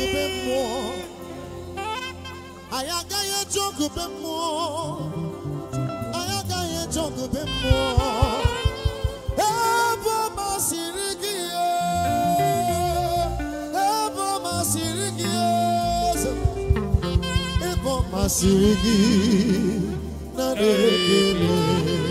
obe mmụọ anyị agaghị be mmụọ anyị agaghị eje ọgụ be mmụọ ebe ọ masịrị gị ebe ọ masịrị gị ebe ọ masịrị gị na na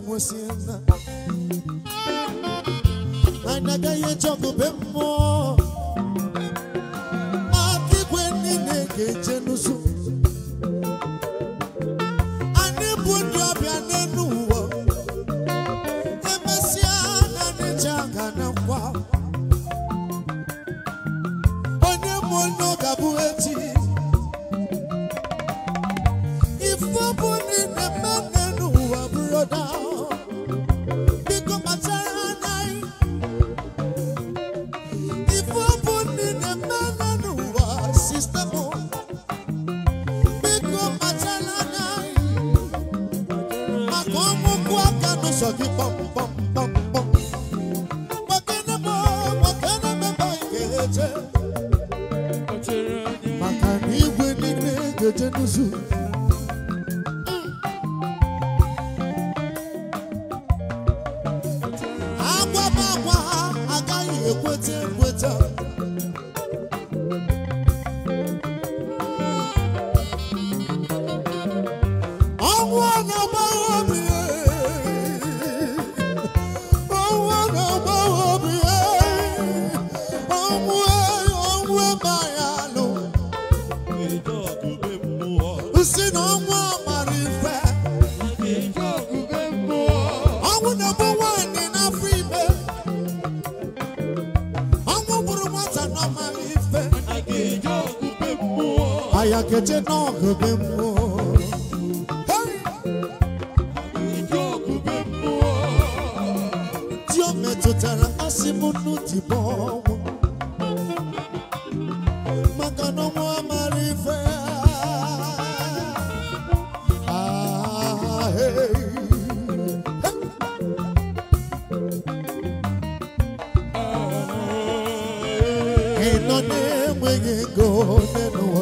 mwesienda ainagaye chokupemmo oche n'ọgụ be mmụọ di o metụtara asị m nnu dịbọ ọnwụ maka na ọnwụ amara ife ị nọ na-enweghị ego n'elu ụwa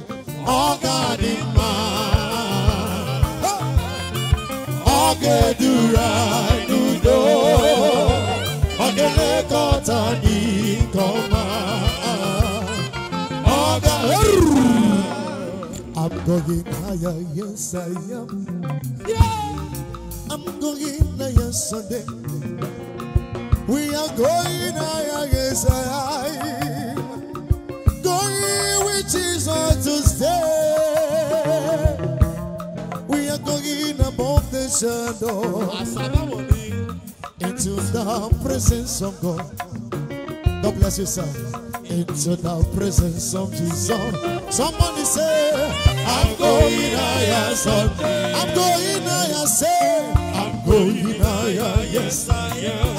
i I'm going higher, yes I am. Yeah. I'm going higher Sunday. We are going higher, yes I am. Jesus, choose on we are going above the shadow into the presence of God. God bless you, sir. Into the presence of Jesus. Somebody say, I'm going higher, son. I'm going higher, say. I'm going higher, yes I am.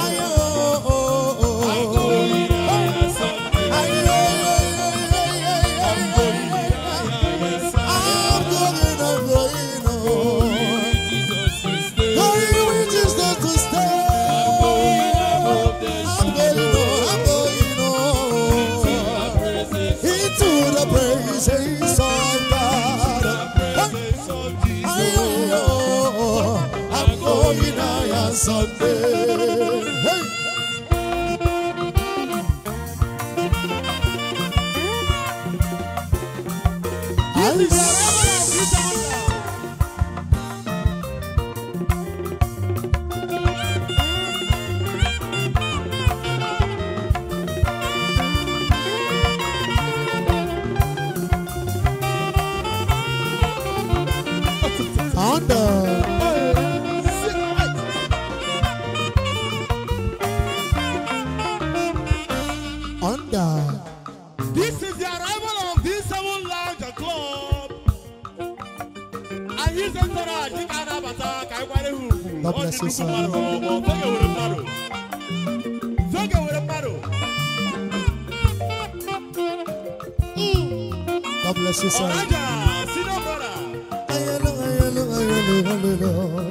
under. This is the arrival of D7 Lounge Club. Ayé sẹ́ńtọ́rọ̀ àjíká adábàtà káíkwárẹ́ hù. Ó ti dúkú mọ́ ọ̀rọ̀ ọmọ fẹ́gẹ̀ wẹ̀rẹ̀ mbàdò. Fẹ́gẹ̀ wẹ̀rẹ̀ mbàdò. God bless you, sir. Ọ̀rájà, senior brother. Ayẹ̀lọ́, ayẹ̀lọ́, ayẹ̀lọ́, ayẹ̀lọ́.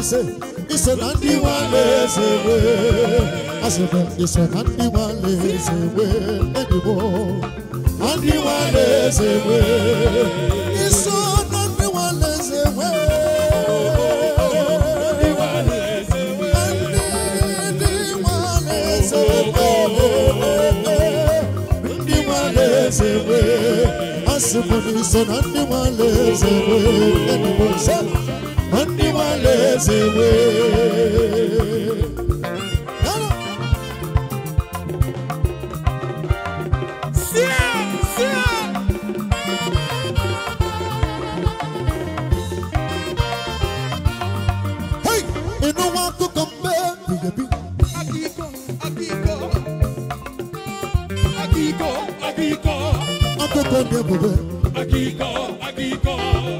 won't ise ise na ndị nwale eze we azụrụ ise na ndị nwale eze we edigbo na ndị nwale eze we ise na ndị nwale eze we ndị nwale eze we asị bụ na ise na ndị nwale eze we edigbo ise na ndị eléṣèwé. Akiko, Akiko, Akiko, Akiko, Akiko.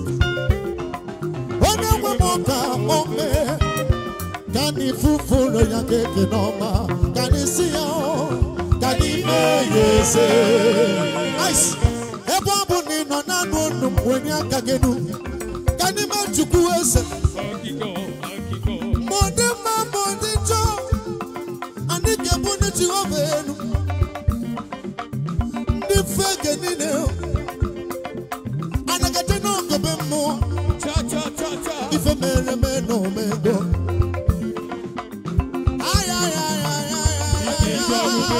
E na ifufe ya ga-eke n'ọma ka si ya ka anyị mee ya eze ebe ọ bụ na ị nọ naanị unu wenye aka gị nu ka eze ma ọ e dị ma ọ dị njọ anyị ga-ebu ndị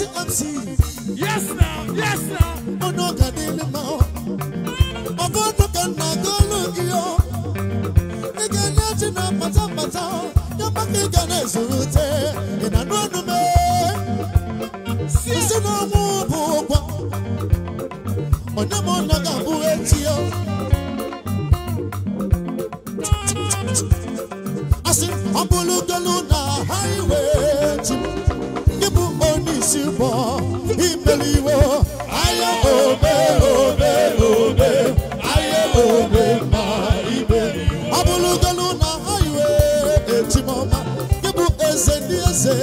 Yes now, Yes now, yes now. Mono kadele mao. Ovo no kana golo iyo. Ike ne china pata pata. Yabaki a surute. Ina no no pariwo ayé obe obe, òbé ayé òbé ma ibe. abulugolu na ayiwe etimoma ibu eze ndị eze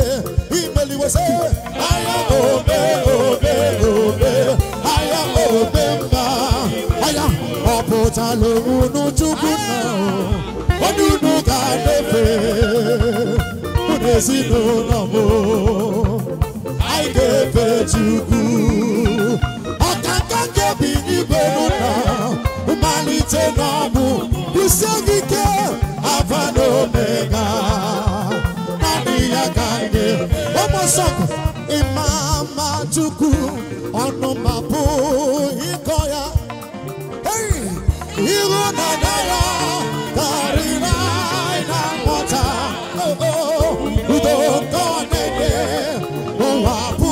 imeliwese ayé obe obe, òbé ayé òbé ma aya ọpụta lowunu chukwu na onunu ga nefe unu ezinụlọ m anyị ga-efe chukwu. ese namu bisegike Alpha and Omega nani omosoko imama chukwu ọnụ mapụ ịkọ ya iru dada ya karịrị na nghọta udo nke ọ na-ede ụwa bụ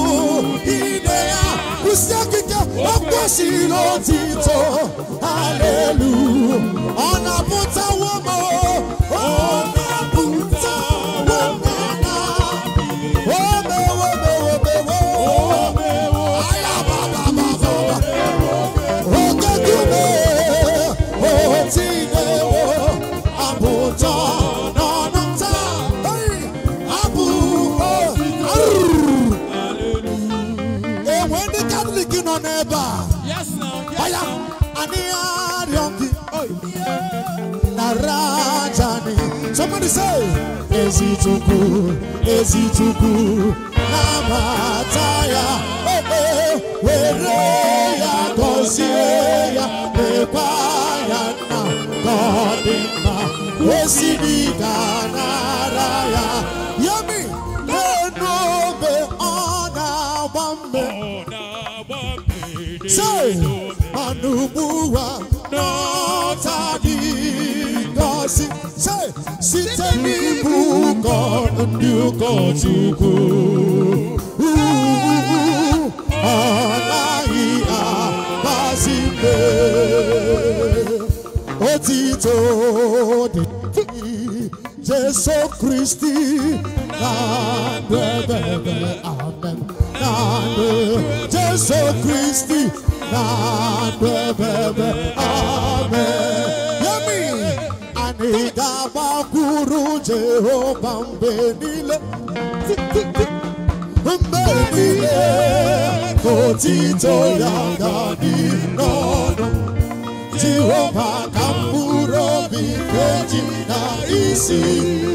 ide lù ọ̀nà bùtà wọ́n mọ́ ọ̀nà bùtà wọ́n mọ́ ọ̀nà wọ́mẹ wọ́mẹ wọ́mẹ wọ́mẹ ayaba bàbà bàbà òkèjú mi òtí ilé wọ́ àbùtà. Yes, now. Yes, now. Somebody say, Ezituku, Ezituku, Namataya, Wereya, Kosieya, Nepayana, Kodima, Wesidika, Naraya. Yami, Lenobe, Ona, no, Say, na nubuwa n'ọtadị gọzi site n'ịbụ ụkọ ndị ụkọchukwu anaghị agbasi mbe otito dị Jesu Kristi na ndebebe amen nade Jesu Kristi nade bebe ame Yemi Ani gaba kuru Jehova mbenile Mbenile Kotito yaga ni nono Jehova kamuro vikeji na isi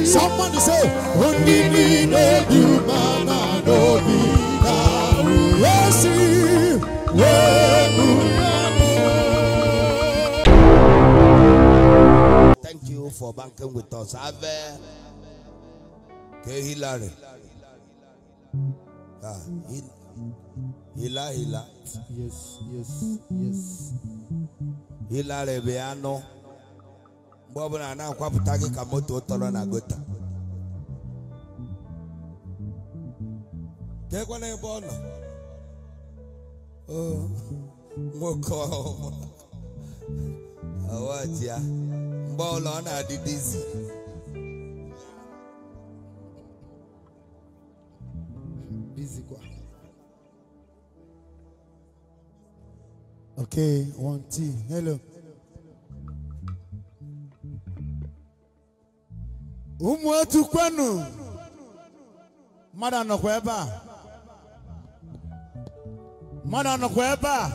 Someone to say Undini no yumana no bi Thank you for banking with us. Ave kehila Hillary. Ah, Hila Hila. Yes, yes, yes. anụ mgbe ọbụla na-akwapụta gị ka moto tọrọ na gota keekwana ebe ọ nọ nwoke ya mgbe ọla ọ na-adịdịzi Okay, one, two, hello. Ụmụ otu kwenu mmadụ nọkwa ebe a mmadụ anọkwa ebe a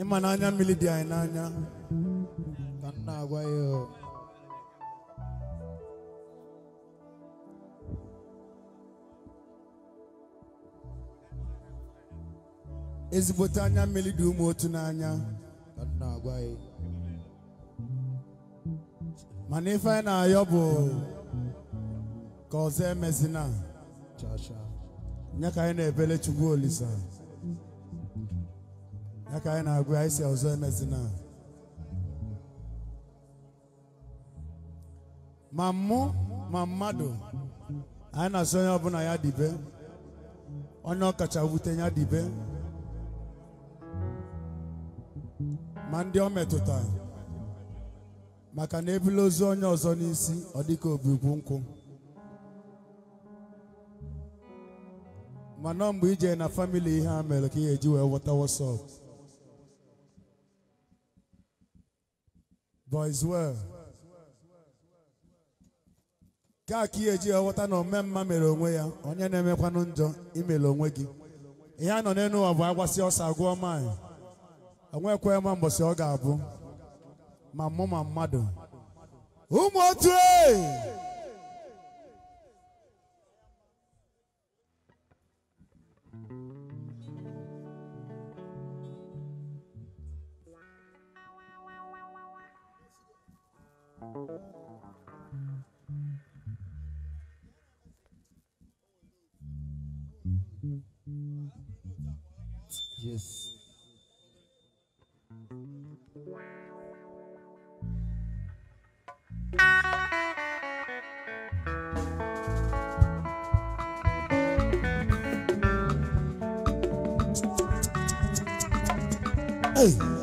ịma na anya mmiri dị anyị n'anya ka m na-agwa ya ezigbote anya mmiri dị ụmụ otu n'anya ka m na-agwa ya mana ife anyị na-ayọ bụ ka ọzọ emezina ya ka anyị na-ebele Chukwu Olisa ya ka anyị na-agụ anyị si ọzọ emezina ma mụ ma mmadụ anyị na-asị onye ọbụla ya dibe onye ọkacha wute ya dibe ma ndị ọ metụtara maka na ebula ozu onye ọzọ n'isi ọ dịka obigwu nkwụ mana mgbe ije na famili ihe a mere ka ị eji wee wọta wọsọp boys ka ka ị eji wee ghọta na ome mma mere onwe ya onye na-emekwanụ njọ imere onwe gị ihe a nọ n'elu ụwa bụ agwasị ọsọ agụọ maanyị onwekwe ma mbọsị ọ ga-abụ My mama ma mmadụ ụmụ otu Yes. Hey.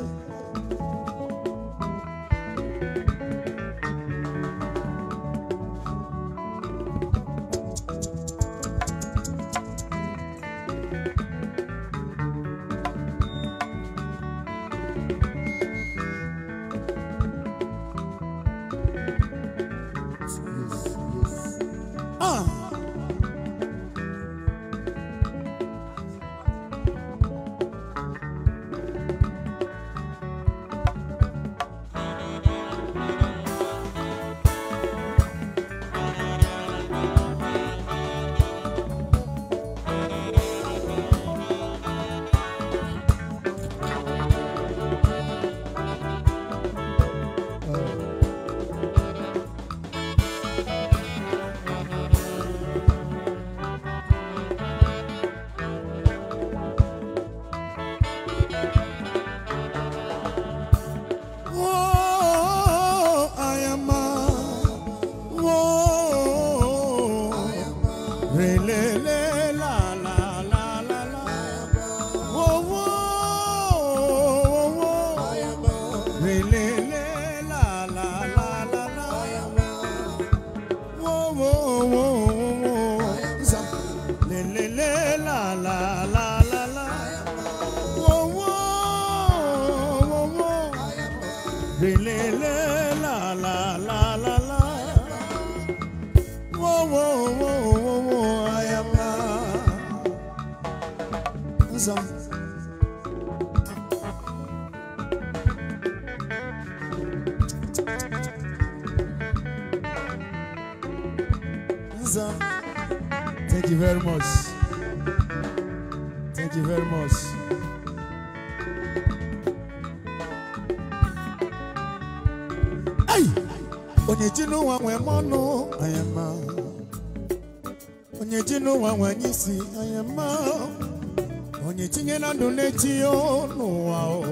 tionuao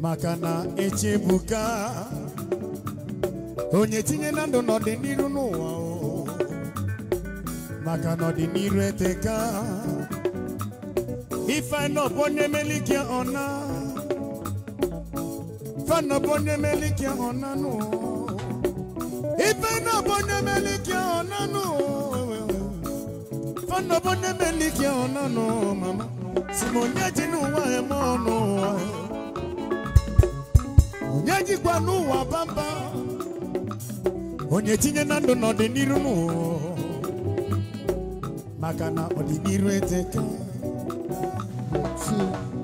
makana echebuka onye tinye na ndụ n'ọdịniru n'ụwa o maka n'ọdịniru eteka ifeanop onye melikia ọna fanop onye melikia ọna nụ ifeanop onye melikia ọna nụ fanop onye melikia ọna nụụ Munyaji nuwa emono Munyaji kwa nuwa bamba Onyeti nye nando na odiniru nuwa Makana odiniru eteke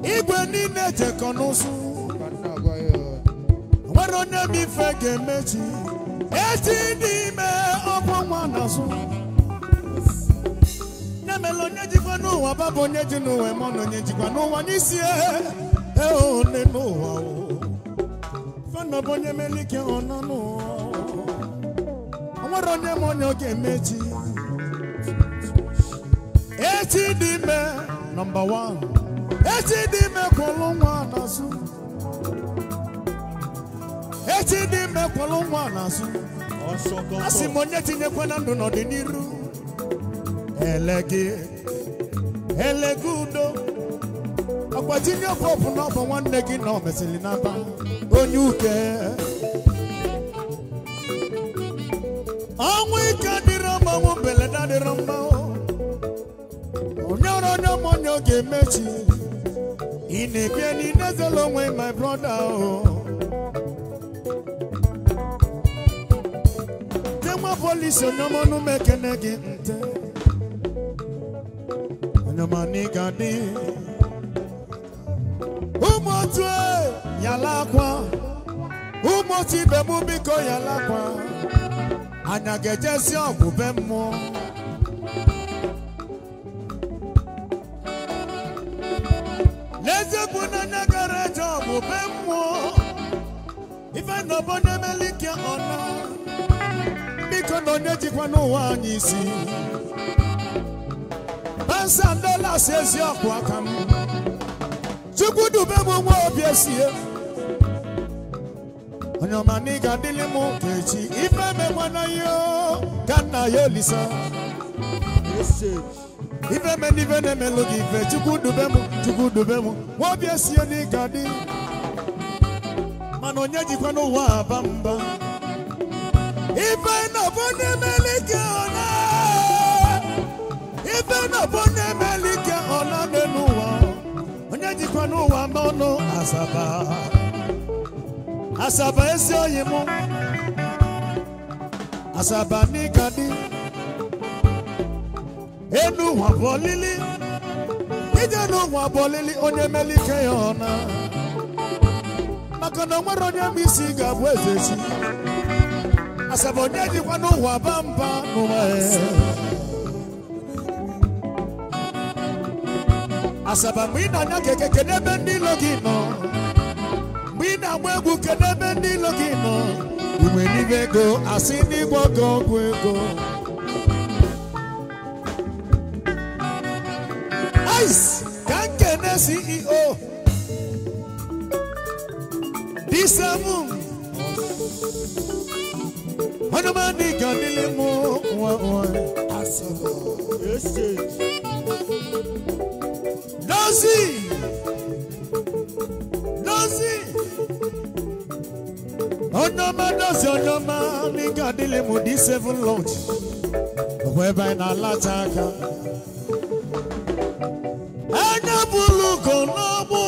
Igwe nine teko nusu Waro nye mifege mechi Eti nime okwa mwanasu Munyaji kwa nuwa bamba onye mere onye jikwa n'ụwa baba onye ji n'ụwa ma na onye jikwa n'ụwa n'isi eone e n'ụwa fana bụ onye mere ike ọ n'ụwa o nwere onye ma onye oge ga echi dị ime nọmba 1 echi dị ime kwụlụ nwa n'azụ echi dị ime kwụlụ nwa n'azụ asị m onye tinyekwana ndụ n'ọdịnihu elegi elegi udo agbatinye ọkwa ọbụ n'ọbụ nwanne gị na omesịrị n'aba onye uke ọnwụ ike dịrị mmanwụ mbeleda dịrị mmanwụ onye ọrụ onye ọmụnye oge emechi ị na-ebie n'ile zela onwe my broda o oh. nwa polisi onye ọmụnụ mekene gị nte anụmanụ ị ụmụ ibe m biko yalakwa akwa anya ga si ọgwụ be mmụọ n'eziokwu na anya eje ọgwụ ife na ọbọ biko na onye jikwa n'ụwa anyị isi ansa ndola asiesie ọkụ aka m chukwu dube m nwa obi esie onye ọma na ị ga m ụka echi ife mekwa na ihe ka nna ya olisa ife me na ife na-emelụ gị ife chukwu dube m chukwu dube m nwa obi esie na ị ga mana onye jikwa n'ụwa aba mba ife na ọbụ na-emeli gị ọna ebe nọbụ na-emeli ike ọ na n'ụwa onye jikwa n'ụwa ma ọnụ asaba asaba ezi oyi m asaba n'ịka dị enu ụwa bụ olili ije n'ụwa bụ olili onye meli ike ya ọ na maka na nwere onye m isi ga-abụ eze si asaba onye jikwa n'ụwa ba mba n'ụwa ya asaba mgbe ị na-anya keke kedu ebe ndị ilo gị nọ mgbe ị na-agba egwu kedu ebe ndị ilo gị nọ ume n'ime ego asị ndị gwọgọ ọgwụ ego ice ka nkene ceo disemu ọnụmadị ga dịlị mụ nwa nwa asaba Dozie Dozie onye dozie onye ọma n'ike seven lunch bụ ebe anyị na-alacha aka anya bụlụ ugo n'ọgbụ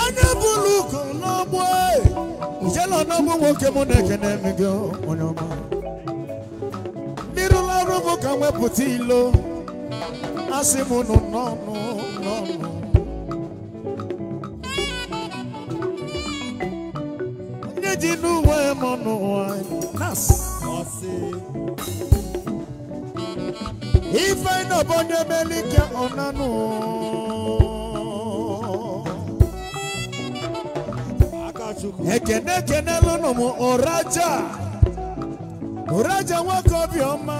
anya n'ọgbụ n'ọgbụ eh. nwoke mụ na-ekene m gị onye ọma mmiri ọrụ m ka mwepụta ilo asị m nụ n'ọnụ n'ọnụ onye ji n'uwe m n'ụwa na-asị ife nọbụ onye melike ọnanụ ekene ekenelụ nụ m ụraja ụraja nwoke obiọma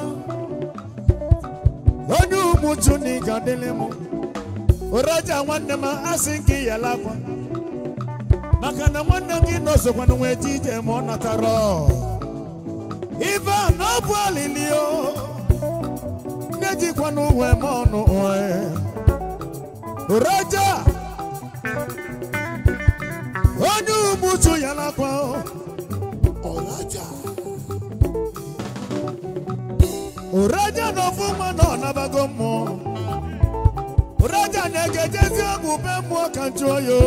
onye umuju na ịga dịlị m ụraja nwanne m asị nke yala akwa maka na nwanne gị nọzokwana na ji ije ma ọ natara ibe a na ọ bụ alili o nne jikwana uwe m ọnụ oraja onye umuju yala akwa oraja ụraja na ofu nwa na ọnabago mmụọ ụraja na-egejezi ọgwụ be mmụọ ka njụọ ya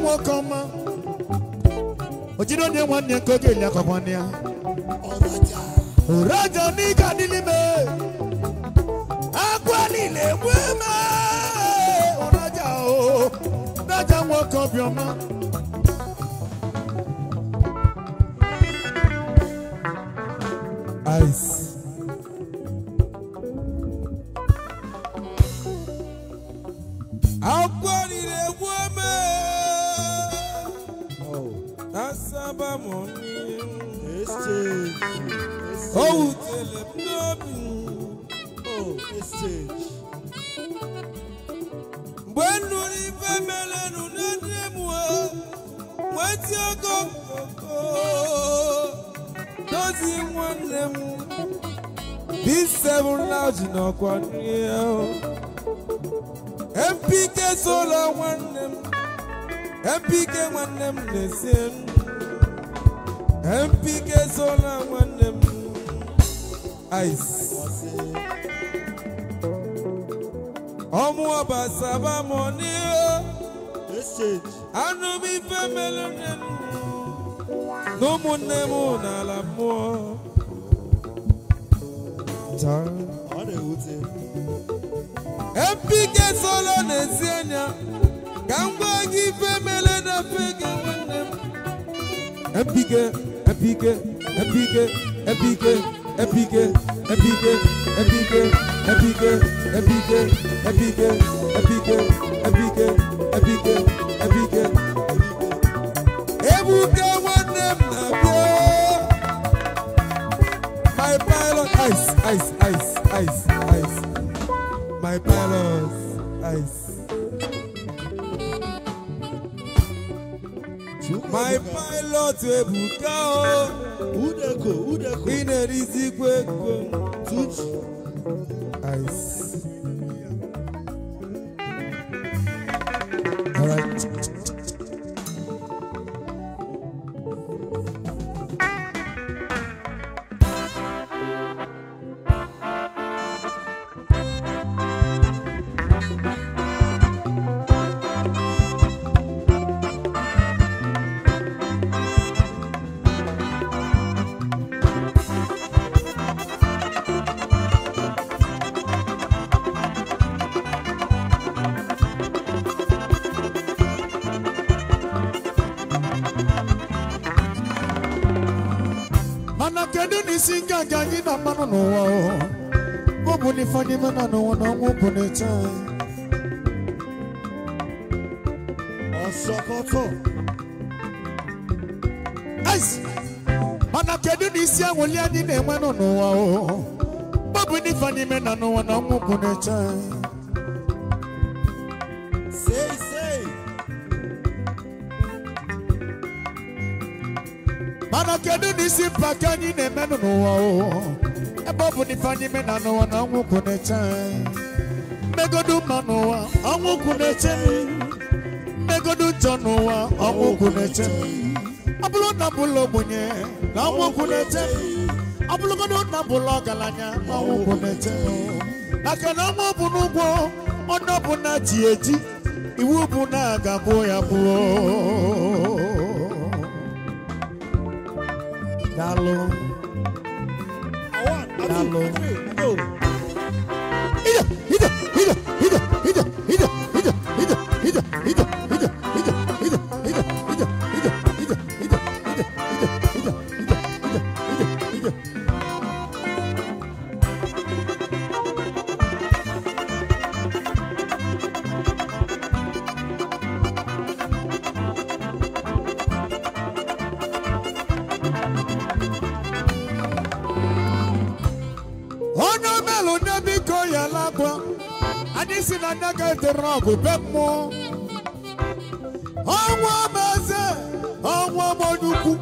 nwoke ọma ojiri onye nwa nwanne nke oge eli akọkwanị ya ụraja n'ike adịlị me akwa na egbu eme ụraja o oh, ụraja nwoke obiọma paz. nọkwa n'ihe MPK solo nwanne m MPK nwanne m na MPK solo nwanne m ice abasa ba m message. anụ m ife melu nne m na ụmụnne m n'ala mmụọ pike solo na-esi anya ka m gwa gị ife mere na pike nwanne m epike epike epike epike epike epike epike epike epike epike epike epike epike epike ebuka nwanne m na-abịa my pilot ice ice my palace. Ice. My pilot ebuka o. Oh. Udeko udeko. Inerisi kweko. Tuchi. Ice. All gị anyị na-akpanụ n'ụwa ọ bụ fani na n'ụwa bụ mana kedu na isi anyị na-enwenụ n'ụwa ọ bụ na fani n'ime na n'ụwa mana kedu n'isi isi mba ka anyị na eme n'ụwa ebe ọ bụ na anyị mena n'ụwa na ọnwụ kwụ na-eche mmegodu mma n'ụwa ọnwụ kwụ na-eche mmegodu njọ n'ụwa ọnwụ kwụ na-eche ọ bụrụ na bụlụ ogbenye na ọnwụ kwụ na-eche ọ bụrụgodo na bụlụ ọgaranya na ọnwụ kwụ na-eche maka na ọnwụ bụ n'ụgwọ ọnụ bụ ji eji iwu bụ na aga gbuo ya gbuo Dá-lo. Dá-lo. anaghị etere ọgụ be mmụọ ọnwa m eze ọnwa m nnukwu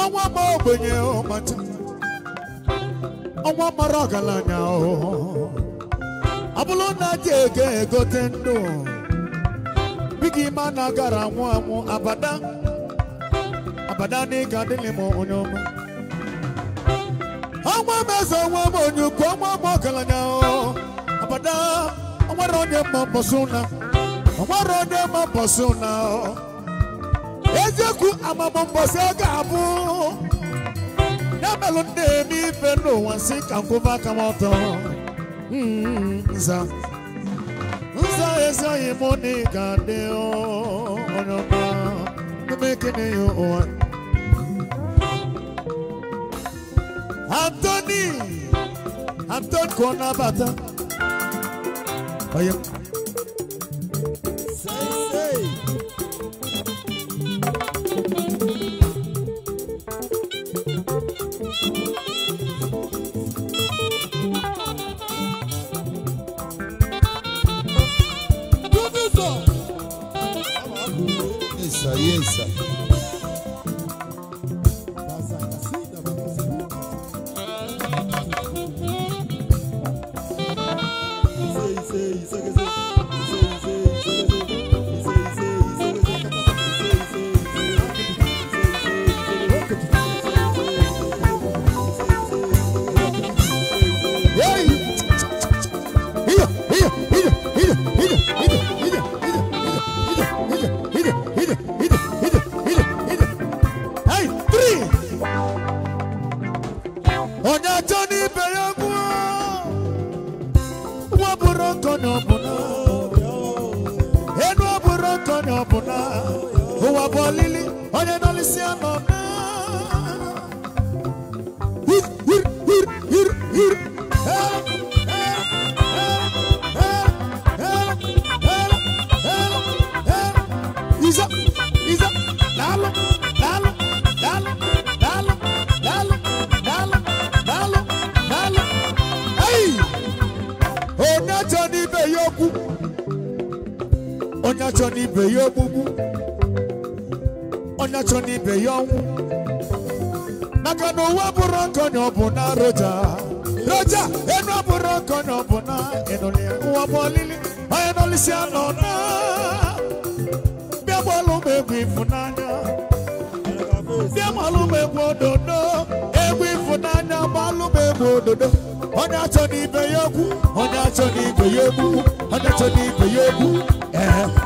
ọnwa m ogbenye ọmacha ọnwa mara ọgaranya ọ bụrụ na ji ego egote ndụ bigi ime a na-agara anwụ anwụ abada abada n'ịga dịlị m onye ọma ọnwa m eze ọnwa m onye ọnwa m ọgaranya abada Omaro de mabosuna. Omaro de mabosuna. Ezeku amabombosa gabu. Namelo de mi feno wansi kankuva kamoto. Hmm, nza. Nza eza imoni kadeo. Onyoma. Numekene yo oan. Anthony, Anthony Konabata. 欢迎。be young. Nakano waburanko nyobuna roja. Roja, eno waburanko nyobuna. Eno liye uwabolili, maeno lisi anona. Bia bwalo mekwi funanya. Bia malo mekwo dodo. Ewi funanya, malo mekwo dodo. Honya choni be yoku, honya choni be yoku, honya choni be yoku. Eh, eh.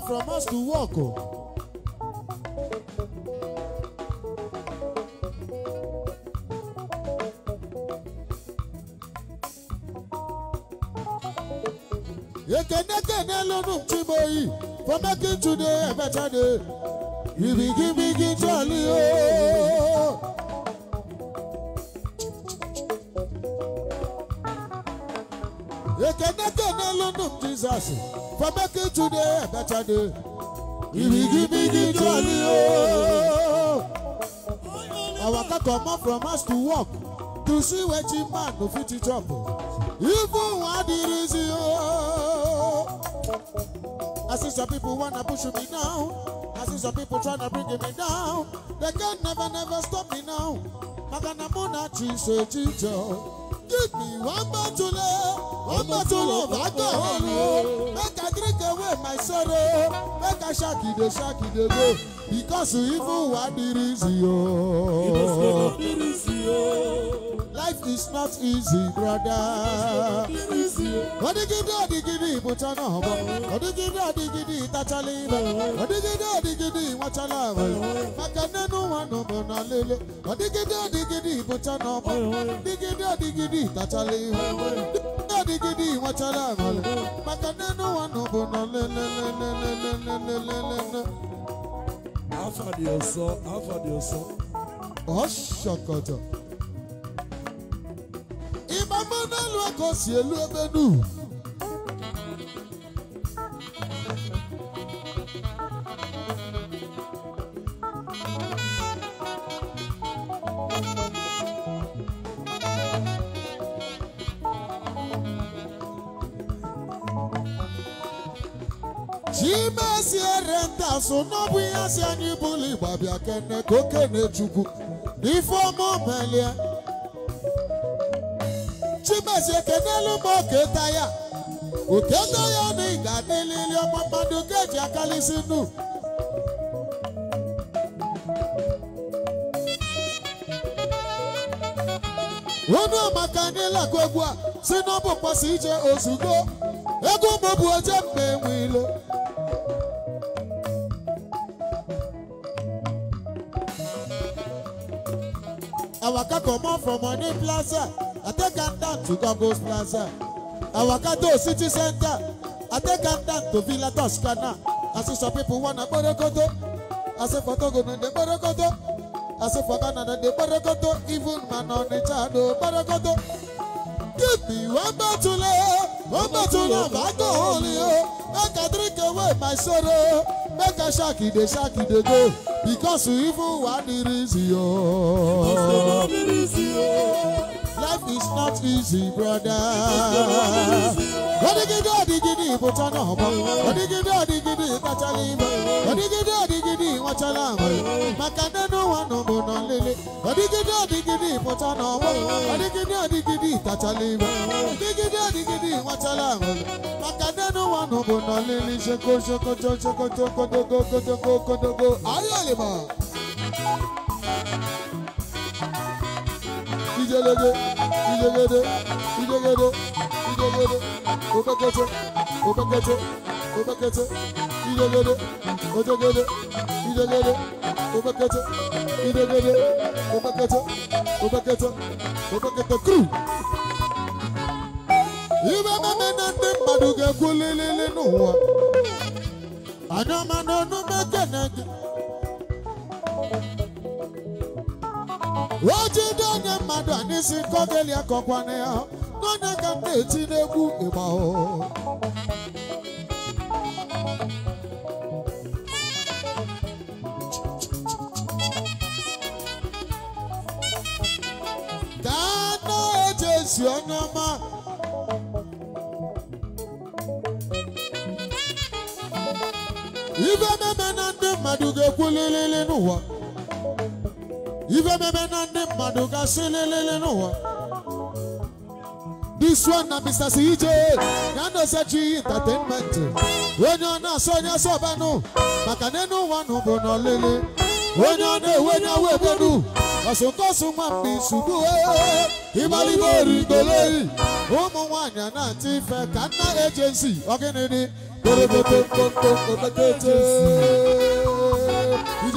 comot from us to work o. Oh. jáde ìrìgìbìgì jọ ni o. Our kakọ mọ from house to work to see wetin man go fit chop even wan di reason o. I see some people wanna push me now, I see some people tryna bring me down. They can never never stop me now. Magana muna chise chicho. Give me one bottle, eh. one bottle of alcohol. my sorrow. Make a shaky the shaky the go. Because you evil what it is Life is not easy, brother. Odigidi odigidi gidi wọn tara àmàlẹ maka nínú wọn nù bò nà lélélélélélélélélélélé. afadi ọsọ afadi ọsọ. ọ̀ṣọ̀kọ̀tọ̀. ìbámu náà lu sí elu ẹgbẹ́ asụ ihe asị anyị bụlụ igba bịa kene ka okene chukwu n'ife ọma omelie chibesi ekenelu ma oketa ya oketa ya na ị ga-adịlili ọma mmadụ ka eji akalịsị nnu onu amaka n'ịlakọ a si n'ọbụ mkpọsi ije ozugbo ego mgbe bụ oje mgbe enwe ilo I waka comot from Money Plaza. I take am down to Congo's Plaza. I waka to City Center. I take am down to Villa Toscana. I see some people wanna borokoto. I say for Togo no dey borokoto. I say for Ghana no dey borokoto. Even man on the child no borokoto. Give me one bottle, eh, one bottle of alcohol, make eh, oh. I drink away my sorrow make I shaki dey shaki dey go because you even wan the reason yo. Life is not easy, brother. Odigidi odigidi butana hoba. Odigidi odigidi batalimba. Odigidi odigidi wachalamba. Makanda no wano bono lele. Odigidi odigidi butana hoba. Odigidi odigidi tatalimba. Odigidi odigidi wachalamba. Makanda no wano bono lele. Sheko sheko sheko sheko sheko sheko sheko sheko sheko. Ayalima. Thank you ìdégédé ìdégédé ìdégédé ìdégédé òkèkété òkèkété òkèkété ìdégédé òjégédé ìdégédé òkèkété ìdégédé òkèkété òkèkété òkèkété kúrú. ibe mama na ndị mmadụ ga-ekwu lilili n'ụwa anya ma n'ọnụ mekene gị wojide onye mmadụ a n'isi akọkwana ya n'onye ka m na-eti n'egwu ịgba gaa na eje esi onye ọma ibe meme na ndị mmadụ ga-ekwu lilili n'ụwa ife meme na ndị mmadụ ga-asị n'ụwa this one na Mr. CJ ya na-esechi entertainment onye ọ na-asọ onye maka na enu ụwa bụ na onye ọ na-ewe onye awa ebenu ọsụnkọsụ nwa mgbe ụmụ na-atị ka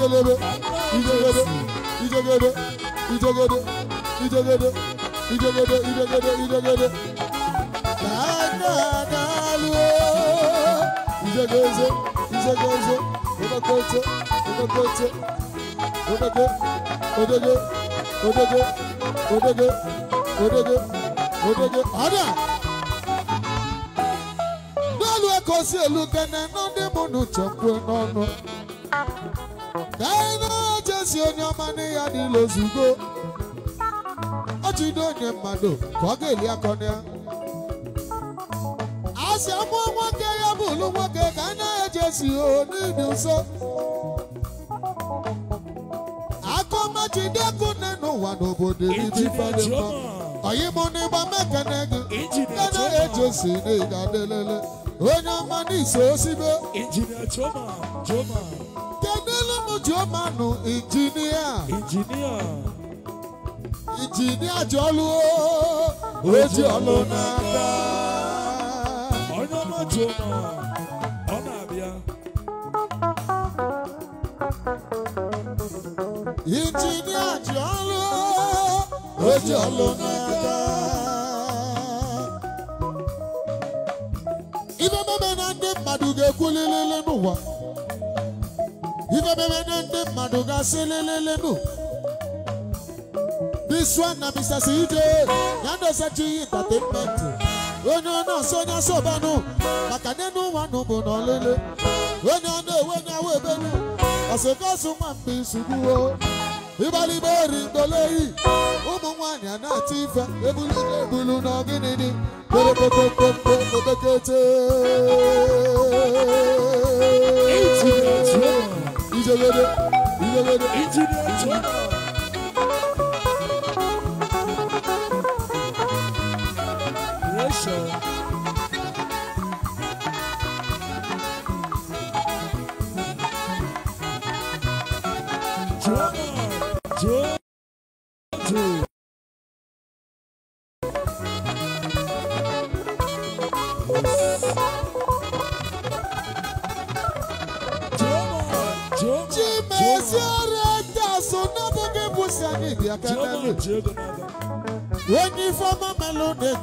nna İdegede, İdegede, İdegede, İdegede, İdegede, İdegede. Nana naluo. İdegeze, İdegeze, Odakote, Odakote, Odege, Odege, Odege, Odege, Odege, Odege. Ada. Naluo kosi elu gana nande munu chakwe nono. Gana. Jesi onye ọma nne ya n'ilo ozugbo ọ jide onye mmadụ ka ọ ga-eli akọ na ya a sị nwoke ya bụlu nwoke ka a naghị eje si n'ịdị nso akọ machide ọkụ nne n'ụwa n'obodo ibi fadị mma ọyịmụ n'ịgba mekene gị ka naghị ejesi n'ịga delele onye ọma n'iso osibe Showmanu engineer. Engineer. Engineer Jolu. Oji ọlọ́nà ká. Ọ̀nà náà ona náà. Ọ̀nà àbíyá. Engineer Jolu. Oji ọlọ́nà ká. Ibe mebe na ndị mmadụ ga-ekwulilili n'ụwa. ife mewede ndị mmadụ ga-asị lelelenu this one na Mr. Cj ya entertainment onye ọ na-asọ onye asọbanụ maka n'enu nụ bụ na onye ọ na-ewe onye awa ebelu ọsịkọsụ nwa mgbe isugbuo ịgbalịgba ori mgboleyi ụmụ nwanyị a na-atụ ife ebulu ebulu na ọgịnịdị Into a little, the, into the, into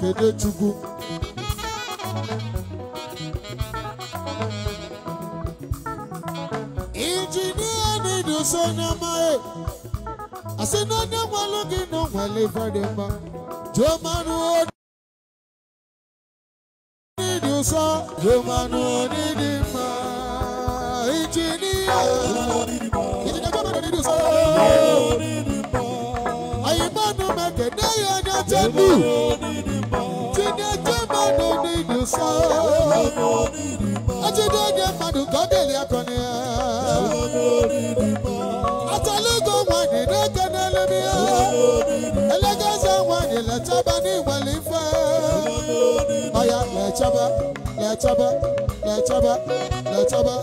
Ekene Chukwu injinia na-edosa onye amaghị asị na onye nwalụ gị na ọnwale ife dị mma jụọ manụ onye ụsọ jụọ manụ onye dị mma injinia injinia jụọ manụ onye dị ụsọ anyị mmanụ meke na ya onye chebu ejide oge mmadụ ka ọ dịrị akọ na ya atala na-eke n'elebe ọya lechaba lechaba lechaba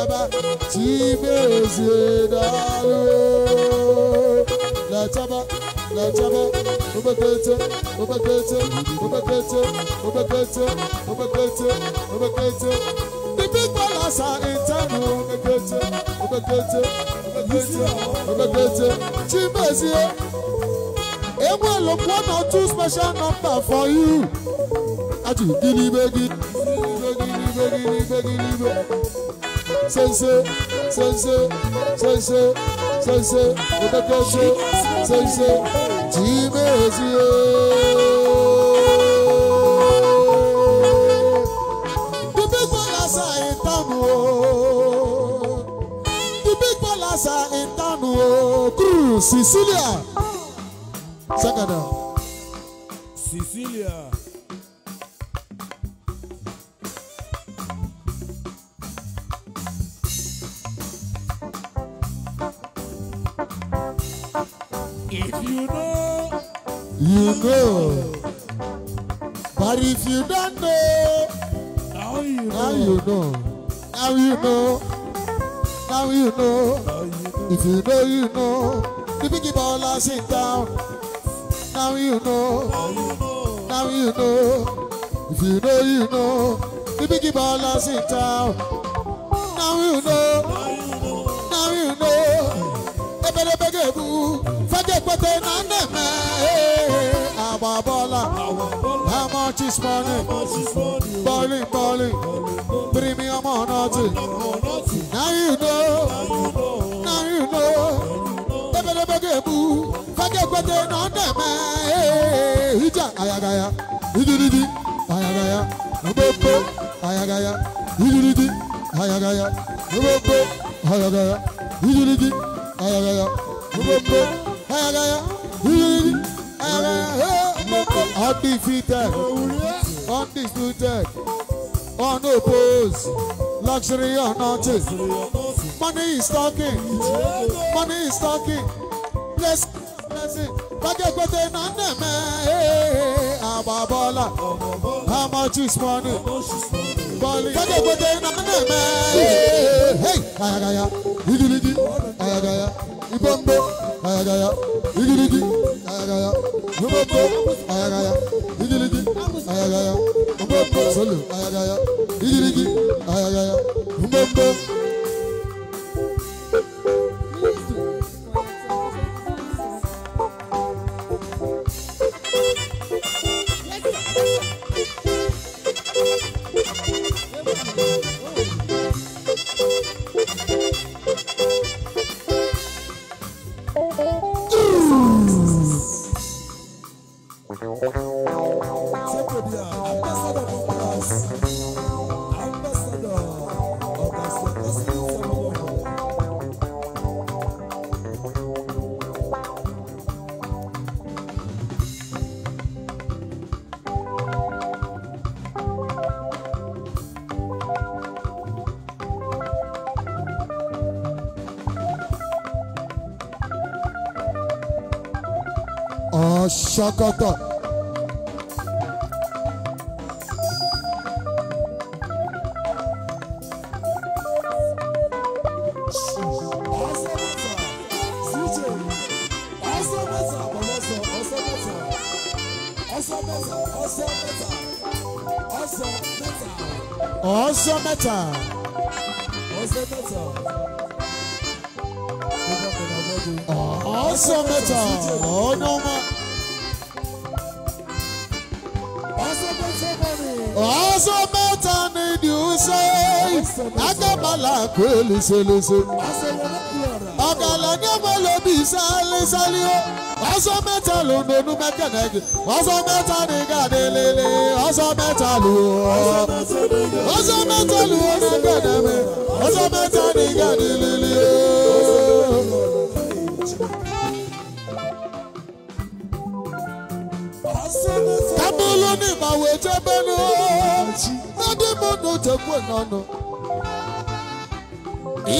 saba chibezidalo la chaba la chaba obekete obekete obekete obekete obekete obekete the big balance are internal obekete obekete obekete obekete chibezie Emmanuel one or two special number for you. Ati gidi gini begini begini begini begini begini sensé, sensé, sensé, sensé, òtẹ́tẹ́sé, sensé, jìmẹ́sì ooo. Bíbí kọ́lásà ìtànù ooo. Bíbí kọ́lásà ìtànù ooo. Kúrú Sicilia. Sẹ́kẹ̀dà. ṣọ̀kọ̀tọ̀. ọ̀sán mẹ́ta. kweli selese ọ̀gàlà ní ọmọ lóbi sálísálí ó ọ̀sán mẹ́ta ló ń donú mẹ́kẹ̀nẹ́kì ọ̀sán mẹ́ta ní gàdélélé ọ̀sán mẹ́ta ló ọ̀sán mẹ́ta ló ọ̀nà gbẹ̀dẹ̀mẹ́ ọ̀sán mẹ́ta ní gàdélélé ó. kábúlù ní ìmọ̀wé tẹ́bẹ́nu ó. lọ́dún mọ́tò tẹ̀kú ẹ̀ náà nù.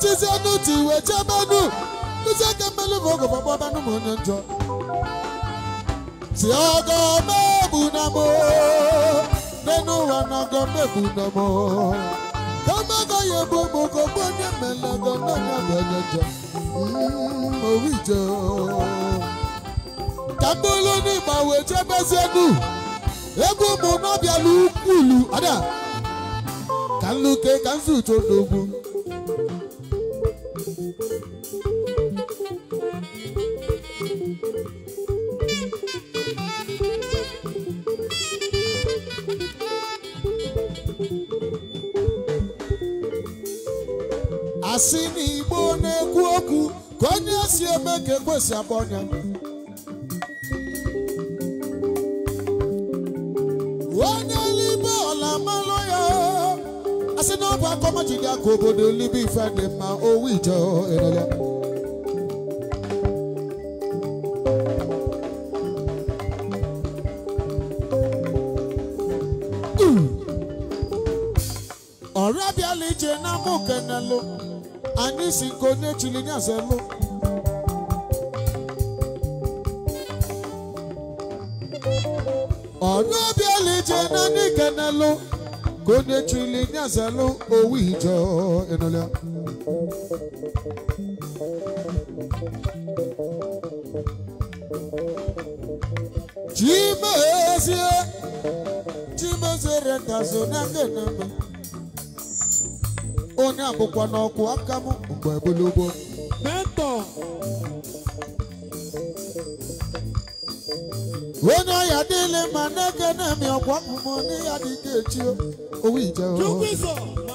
echizienu ti iwe chebenu onye njọ si ọgọ na mo ụwa na ọgọ na ka ọ ebu ụmụ onye mmele ọgọ bụ onye njọ mm, ka mkpụrụ n'ịgba wee ụmụ ukwulu ada ka nluke ka nzuto n'ogwu asị na igbo na-ekwu okwu ka onye si eme ka ekwesị agba ọnya si na akọma ji gị aka obodo libe ife dị mma owu ije elele ọra bịala ije na mụ kenelụ anyị si nke onye chili nyazelu onye chụile nye azalụ owu ijo enụlọ chimezie chimezere ndazo n'aka enema onye abụkwa n'ọkụ aka m mgbe gbolobo mentọ onye ọya niile ma na-eke na-eme ọkwa mmụọ n'ihe dị ka echi owó ìjọ.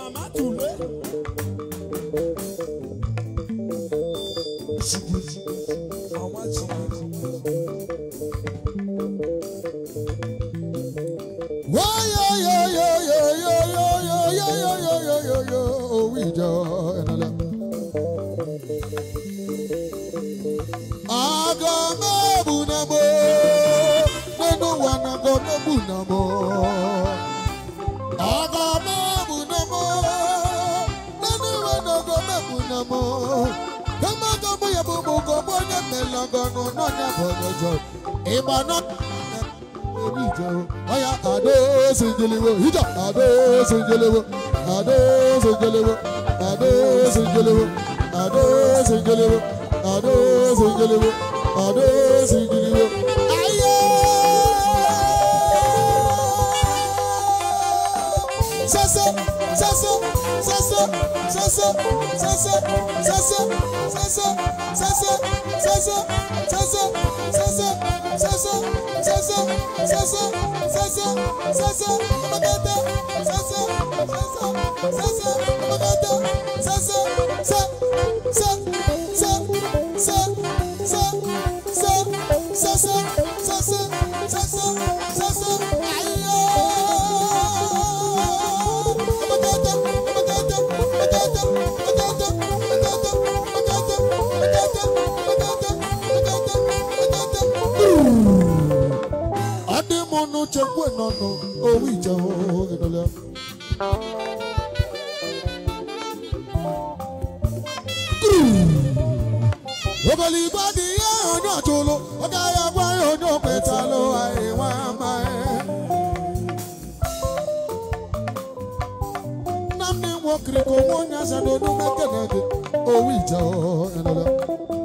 mana ebi jẹ o ọya adó sèjelewo ìjọ adó sèjelewo adó sèjelewo adó sèjelewo adó sèjelewo adó sèjelewo adó sèjelewo. ayé sẹ́sẹ́. Sasa, sasa, sasa, sasa, sasa, sasa, mono chengwe no no o wi cha o ke no le Obali badi ya ono cholo oga ya gwa ono petalo ai wa mai Namne wo kriko mo nya sa do no mekene o wi cha o ke no le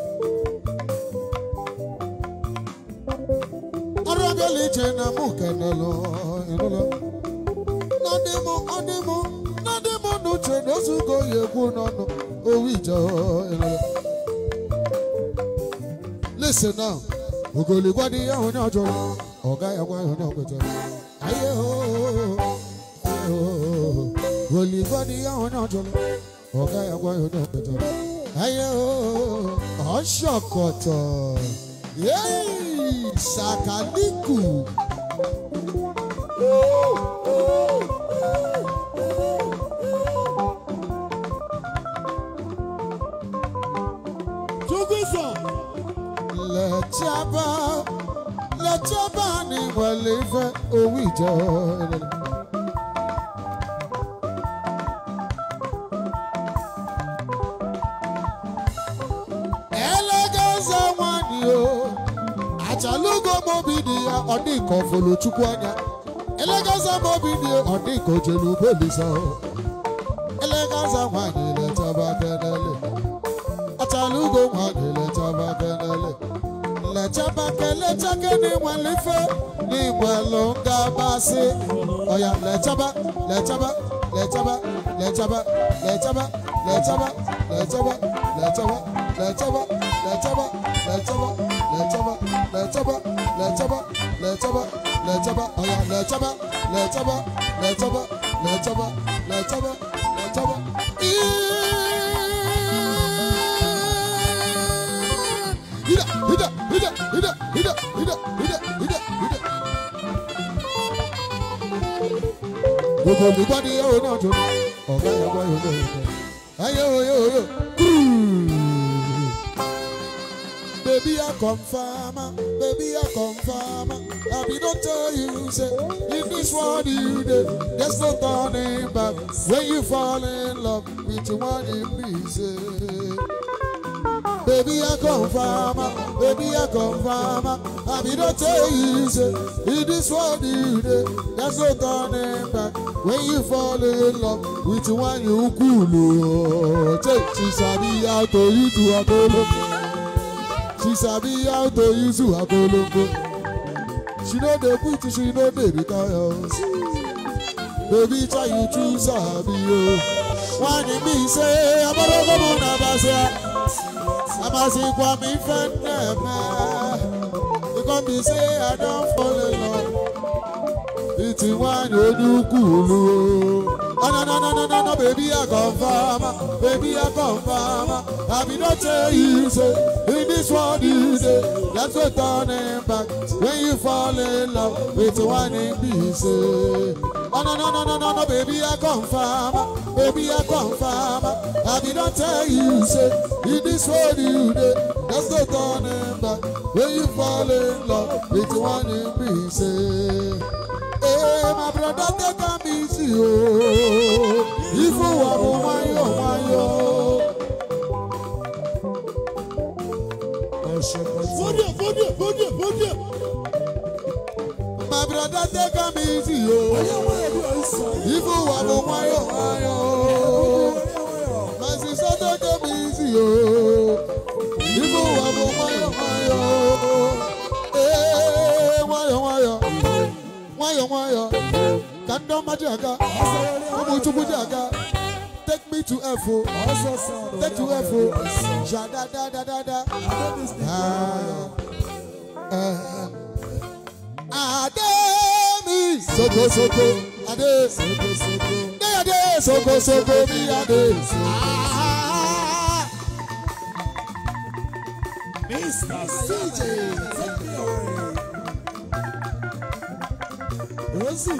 listen now ogoligwa dị ya onye ọjọọ ọ gaghị agwa ya onye aye ogoligwa dị ya onye ọjọọ ọ gaghị agwa ya onye ọkwetara aye ọ shọkọtọ yeah. ìsàkálíkù. Tugusa. Lẹ́tí abá, lẹ́tí abá ni wọ́n lè fẹ́ owó ìjọ. Odi dị ka ọ fụlụ chukwu anya elegaza m obi dị ọ dị ka o jere ugbo olisa elegaza nwanyị letaba kenele achala ugo nwanyị letaba kenele lechaba kelecha kene nwelife ọya lechaba lechaba lechaba lechaba lechaba lechaba lechaba lechaba lechaba lechaba lechaba lechaba lẹ́tẹ́bá lẹ́tẹ́bá lẹ́tẹ́bá lẹ́tẹ́bá ọ̀yà lẹ́tẹ́bá lẹ́tẹ́bá lẹ́tẹ́bá lẹ́tẹ́bá lẹ́tẹ́bá lẹ́tẹ́bá. Hida, hida, hida, hida, hida, hida, hida, hida, hida. Gbogbo olùgbọ́dí yóò náà dùn, ọ̀gá yọ̀gbọ́ yóò náà dùn. Ayé o yóò yóò, kúrú. Baby, I confirm a confirmer. I be don't tell you, say, if this what you did, there's no turning back. When you fall in love with the one in pieces. Baby, I confirm. Baby, I confirm. I be don't tell you, say, if this what you did, there's no turning back. When you fall in love with the one you cool, Oh, take this idea to you to a She sabi how to use her golongo. She know the quit, she know the because. Baby, try you to sabi yo. Why did me say I'm a lover of Nabasia? I'm a sick one, me friend. You come be say I don't fall in love. It's one you do cool. Oh, no, no, no, no, no, no, baby, I confirm. Baby, I confirm. I be not tell you, say this world you dey let's go turning back when you fall in love with one in peace. Eh. Oh, no, no, no, no, no, no, baby, I confirm, ah. baby, I confirm. Ah. I did not tell you, say, in this world you dey let's go turning back when you fall in love with one in peace. Hey, eh. eh, my brother, take a easy, oh, if you want to, oh, my, oh, my, oh. Fódìẹ̀ fódìẹ̀ fódìẹ̀ fódìẹ̀. My brother take am easy o. Ibu wa mo wayo wayo My sister take am easy o. Ibu wa mo wayo wayo o. Eh, ee wayo wayo. Wayo wayo. Kando majaga. Omuchukwu jaga me to F O. Take to F O. Ja da da da da da. Ah. Ah. Ademi soko soko ade soko soko de ade soko soko mi ade. Mr. CJ. Rosie.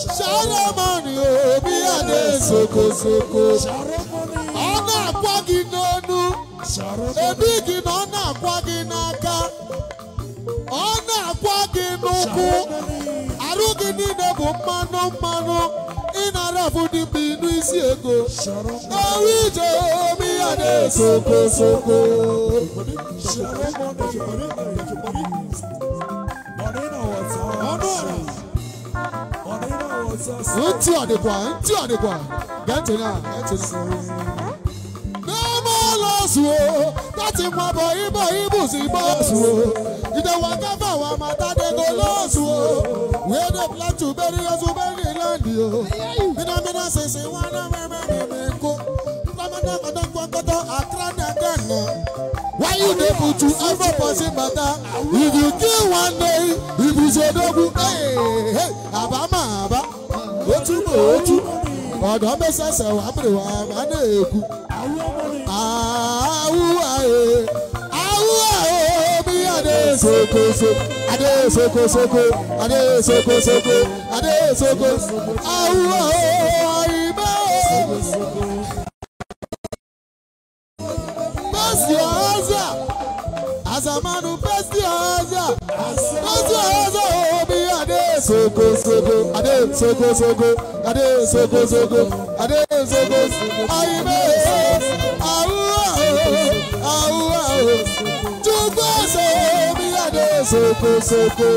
sharomani obi ya na-esoko n'aka ọ na n'ụkwụ arụ gị niile bụ mmanụ mmanụ ị na-arafụ dị mgbe ịnụ ego ewu ije omi Káyọ̀dé sokosoko. Ntí àdìgbà ntí àdìgbà gẹ́tì náà gẹ́tì sí. Bẹ́ẹ̀mọ́ lọ sùn o, láti mọ bọ̀ ibọ̀ ibùsùn ibọ̀ sùn o. Ìdẹ̀wọ̀n kẹfà wà máa tádégó lọ́sùn o. Wíwẹ́dẹ̀ pílátù bẹ́ẹ̀ ni Yosùn bẹ́ẹ̀ ni Ìlàndì o. Bínú bínú ṣèṣe wọn náà mẹ́mẹ́rin mi kó kpọkọtọ kpọkọtọ akra na aka nọ. why you dey put you every person bata if you kill one day if you so dogun àbá mà àbá otu mà otu ọ̀dọ́ mẹ́sẹ̀sẹ̀ wà pèrè wà má nà èkú. àwùwà ee àwùwà ee bí adé sokosoko adé sokosoko adé sokosoko adé sokosoko àwùwà ee àyìnbó. ọ̀ọ́sà àsàmánú pẹ́sì ọ̀ọ́sà pẹ́sì ọ̀ọ́sà omi oh, adé sogosogo adé sogosogo adé sogosogo adé sogosogo ayimé awúwá o awúwá o oh, túbọ̀ sọ omi adé sogosogo.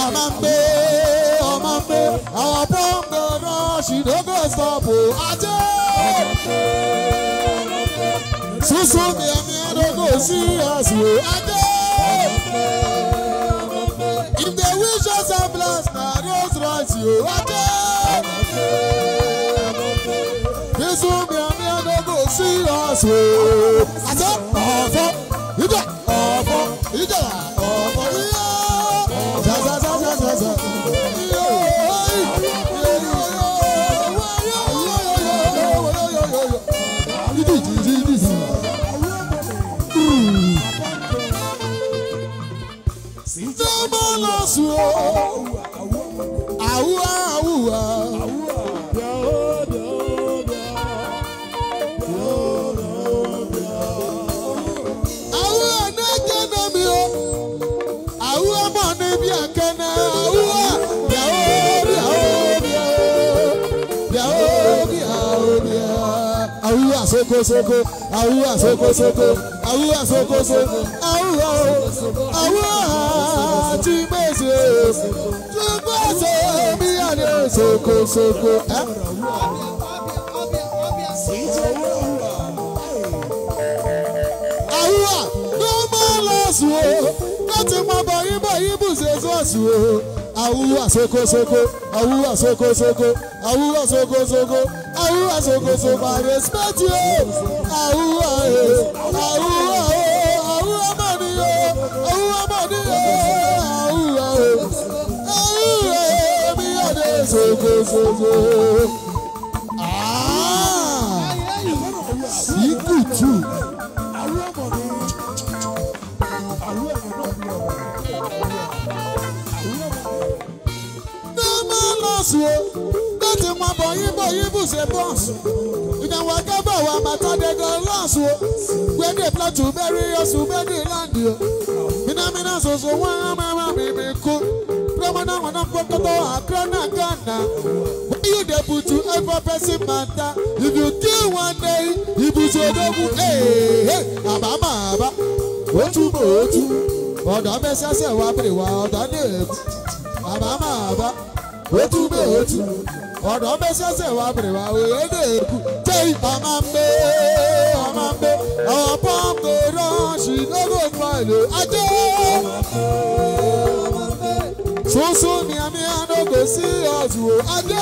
ọmọ ń gbé ọmọ ń gbé àwọn pọ́ńpẹ́ náà ṣìdógò sọ̀bù ajé. Súnsún mi ẹ̀mí ẹ̀dógò sí ẹ̀sùn ajé. If they wish us a bless, na Rolls Royce yóò ajé. Súnsún mi ẹ̀mí ẹ̀dógò sí ẹ̀sùn ajé. Ọ̀fọ̀ ìjọ ọ̀fọ̀. Jésù àwùwà àwùwà. awuwa soko soko awuwa soko soko awuwa soko soko awuwa awuwa túbọ̀ ṣe bí àdé ṣokòṣokò. àwùwà ló máa lọ sùn o láti mọ bọyí bọyí bùsẹ̀ sọ́ọ̀sù o. àwùwà soko, àwùwà ṣokòṣokò àwùwà ṣokòṣokò àwùwà ṣokòṣokò I respect you àwùwà ẹ̀ àwùwà. ṣoṣoṣoṣo. Síkù tù. Dọ́mọ lọ sí o, bó ti mọ bọ̀yìn bọ̀yìn bù ṣe bọ́ọ̀sì. Ìdánwò akẹ́bọ̀ wa Màtádẹ́gàn lọ́ọ̀sì o. Gbẹ́dẹ̀ plọ̀tù bẹ́rí oṣù bẹ́ẹ̀dì láǹdì o. Mínámíná ṣoṣo wọ́n á wana wana kokoto akrana kana why you dey put to every person matter if you kill one day Hey, ibuso odogun ee àbámọ̀ àbá òtúmọ̀ òtú ọ̀dọ́ mẹ́sàsẹ̀ wá pèrè wá ọ̀dọ́ ní èkó àbámọ̀ àbá òtúmọ̀ òtú ọ̀dọ́ mẹ́sàsẹ̀ wá pèrè wá òye ní èkó tẹ́ ọmọ mbẹ́ ọmọ mbẹ́ ọ̀pọ̀ kò rán ṣì lọ́gọ̀ fún àìlè ajé sunsun ni àmì àdógò sí ọ̀tún Ade.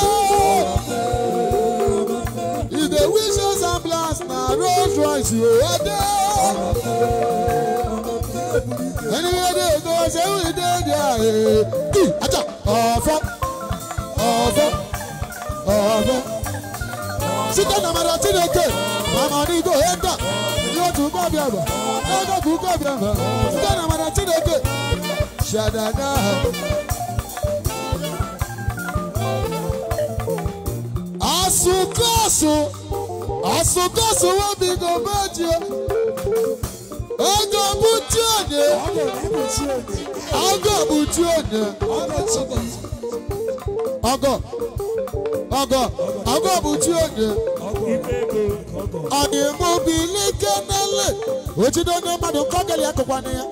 If the wishes and plans na Rolls Royce o adé. Ẹni wọ́n dé ètò ọ̀sẹ̀ wí dé dé àyè. Kí ajá ọ̀fọ́ ọ̀fọ́ ọ̀fọ́. Sítọ́ na Mada Chineke, Mama Nigo Eda, yóò tún kọ́ bí àgbà, ẹ̀ẹ́dọ̀kú kọ́ bí àgbà. Sítọ́ na Mada Shada Ṣàdàdà. asụkọsụ asụkọsụ webigo beji ego buchi onye ọgọ buchi onye ọgọ ọgọ ọgọ buchi onye ọdịmụbilikemele otido onye mmadụ kọgeli akọkwana ya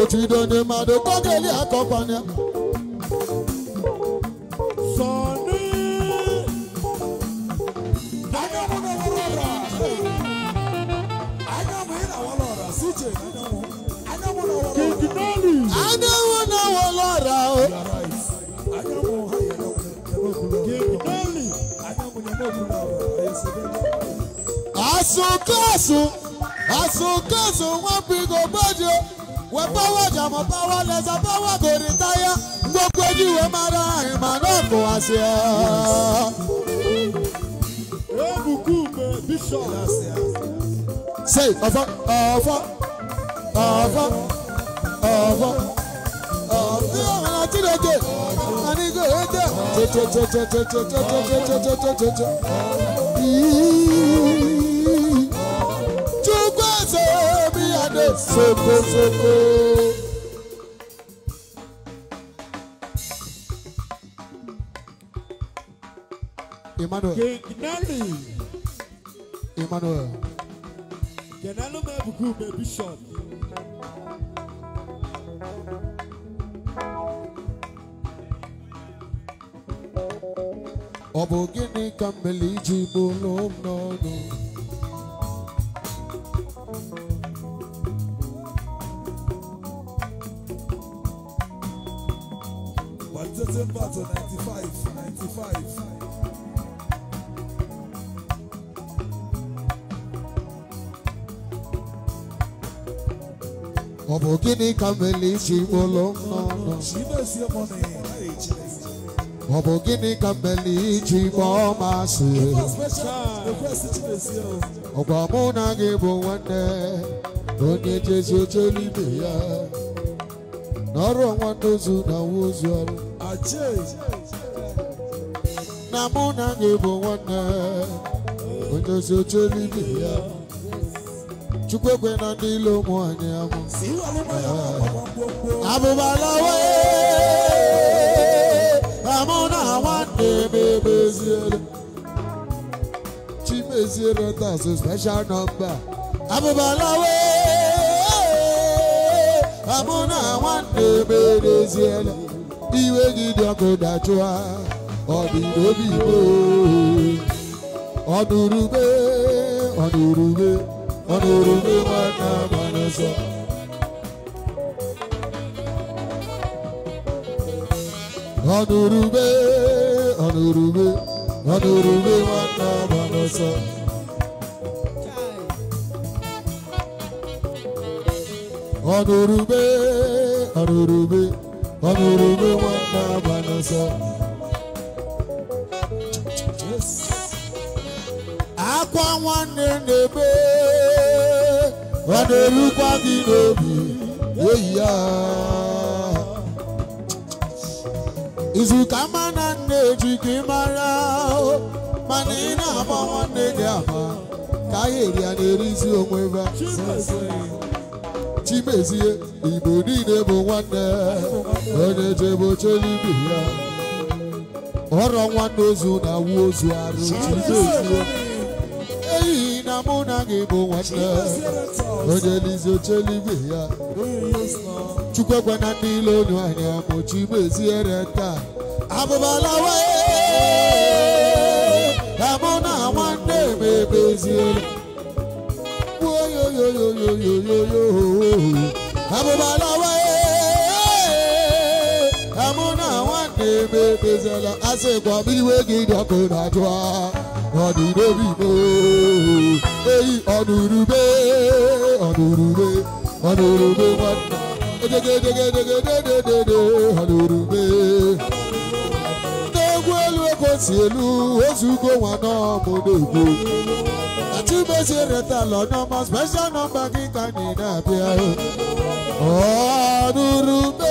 otido onye mmadụ kọgeli akọkwana ya àsunkóòsùn àsunkóòsùn wọ́n fi gògbóde wọ́n báwọ̀ jàmọ̀ báwọ̀ lẹ́sẹ̀ báwọ̀ kò ní táyà gbogbo ojú wo máa ra ìmọ̀ náà kò wá sí ẹ. ebùkún mi bíṣọ̀. ṣe ọ̀fọ̀ ọ̀fọ̀ ọ̀fọ̀ ọ̀fọ̀ ọ̀fọ̀ ọ̀nà tí lè dé àníkò ètè tètè tètè tètè tètè tètè tètè tètè. sokosoko. Emmanuel. Genali. Emmanuel. Genali Mabuku, my bishop. ọ gịnị ka mmeli ji gịnị ka mere iji bụlụ n'ọnụ ọ bụ gịnị ka mmeli iji gbaa ọma si ọgwa mụ na gị bụ nwanne onye jezu oche ya n'ọrụ ọnwa ndozu na ozu ọrụ na mụ na gị bụ nwanne onye jezu ibe ya Chukwukwe na ndị ilu ụmụ anyị amụ abụbalawe amụ na nwanne m chimeziere tas special nọmba abụbalawe amụ na nwanne m emeziere iwe gị dị ọkụ dachụa ọdịnobi igbo ọdụrube ọdụrube Anurube, anurube, anurube mana manasa. Anurube, anurube, anurube mana manasa. Yes Akwa nwanne na-ebe ọ na-erukwa gị n'obi eyi ya izuka ma na nne ji gị mara mana ị na-agba nwanne gị ama ka ahịrị ya na-erizi onwe ya chimezie igbo niile bụ nwanne onye jebe oche n'ibi ya ọrọ nwanne ozu na-awụ ozu arụ chimezie mụ oh, na gị bụ nwanne onye lizi oche eluigwe ya chukwu ekwe na ndị eyi ọnurube ọnurube ọnurube nwanna edegedegedegededede ọnurube n'egwu elu Anurube. si elu ozugo nwa n'ọmụ n'egwu chimezie retala n'ọma special nọmba gị ka anyị na-abịa ọnurube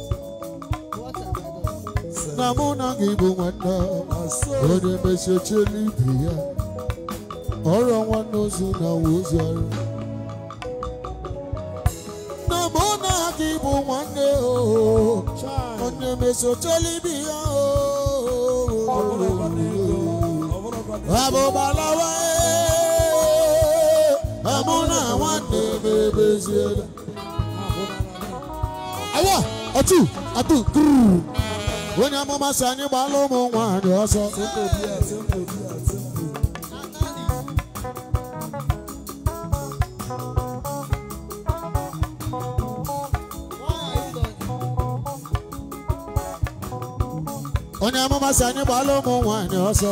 na mụ na gị bụ nwanne onye mesie oche ibe ya ọrụ nwanne ozu na ozi ọrụ na mụ na gị bụ nwanne onye mesie oche ibe ya abụbalawa e. amụ na nwanne mebezie awa atụ atụ gụrụ onye amụma si anyị gbaala ụmụ nwanyị ọsọ onye amụma si anyị gbaala ụmụ nwanyị ọsọ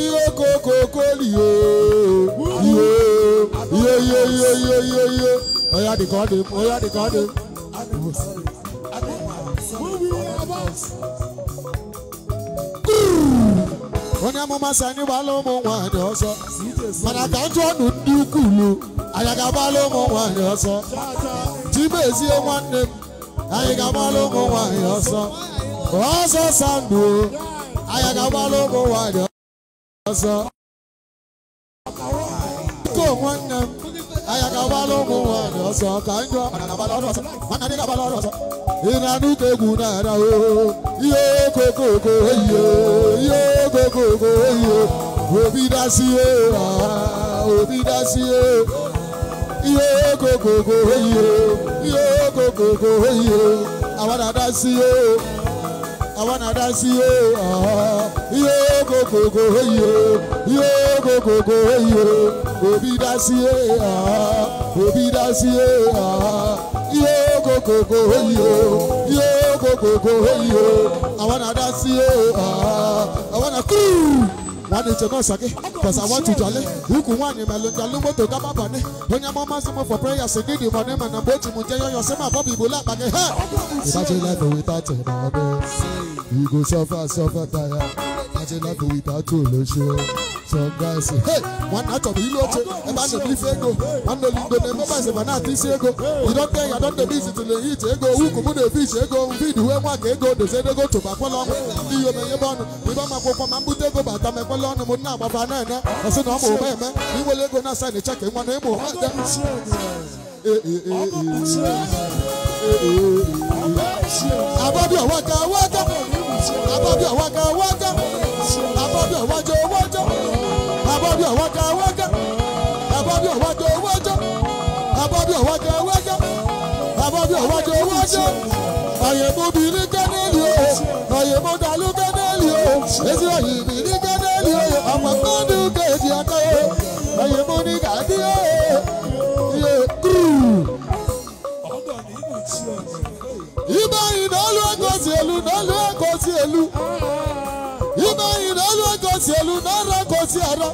ihe kokokoli ihe ihe ihe ihe ihe ihe Oya the God, Oya the God. onye amụma si anyị gbala ụmụ nwaanyị ọsọ mana ka njọ ọnụ ndị ukwuu anyị ga-agbala ụmụ nwaanyị ọsọ chimezie nwanne m anyị ga-agbala ụmụ nwaanyị ọsọ ọsọ sandụ anyị ga-agbala ụmụ nwaanyị ọsọ nwanne m anyị ga-agbala ụmụ ni ọsọ kanjọ ọ̀nàdàbà lọ́rọ̀ sọ ọ̀nàdàbà lọ́rọ̀ sọ. ìnànú kegù nàrà o iye kokoko iye iye kokoko iye òbí dá sí e òbí dá sí e iye kokoko iye iye kokoko iye àwọn àdá sí e àwọn àdá sí o yóò kòkòkò yìí o yóò kòkòkò yìí o òbí dá sí o òbí dá sí o yóò kòkòkò yìí o yóò kòkòkò yìí o àwọn àdá sí o àwọn àkúrú wane chekwa sake cause I want to jolly huku wani melonja lumoto kama bane onye mo masimo for prayer so give you money man and bochi mu jeyo yo sema bobi bula bage ha imagine life without your babe you go suffer suffer tire imagine life without your lose some guys hey one out of you loche e ba no believe ego one no lindo ne mobile se bana ti se ego you don't tell you don't dey busy to dey eat ego huku mu dey fish ego feed we nwa ka ego dey say dey go to bakwalo ni yo me yebonu we ba ma kwokwa ma mbute ego ba n'ụlọọnụ m nna agbaba na-ene asị na ọ ma ome eme iwele ego na asaịn cheki nwa na ịmụ ha de ababia waka waka ababia waka waka ababia wajo wajo ababia waka waka ababia wajo wajo ababia waka waka ababia wajo wajo ayemo biri kaneli o ayemo dalu kaneli o ezi oyi mi. elu ime anyị na olu egosi elu na ara gosi ara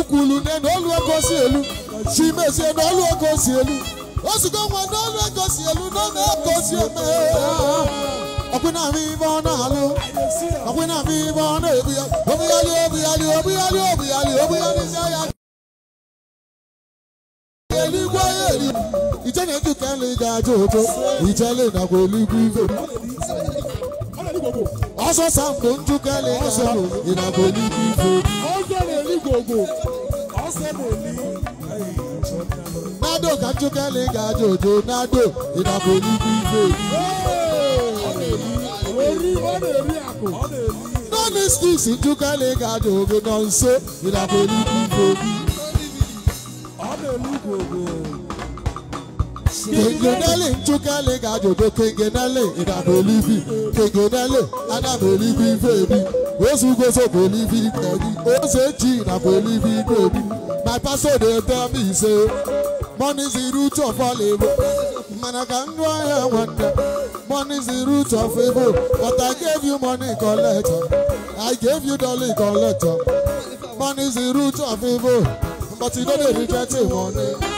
ukwulu ne na olu egosi elu mesie na olu egosi elu osigo nwa na olu egosi elu na ọ na-egosi eme ọkwụnami ibe ọ na-alụ ọkwụnami ibe ọ na-ebu ya obughali obughali obughali obughali obughali ya eluigwe ya eri ije na-ejuka nri ga-aja ije ijele nakwa eluigwe ibe ọsọ sambo njuka lena ịnabụ n'ime ife obi nado ka njuka ga ojo nado ịnabụ n'ime ife obi nọọnụ stiks njuka ga nọ nso na-elu ugwu kengenele nchụkali ga-ajụdo kengenele ịdabelibi kengenele adabelibi ife ebi ozugozobelibi ebi ozechi dabelibi ife ebi my pastor dey tell me say money is the root of all evil mana ka ndụ ahịa nwanne money is the root of evil but i gave you money collector i gave you dollar collector money is the root of evil but you no dey reject money.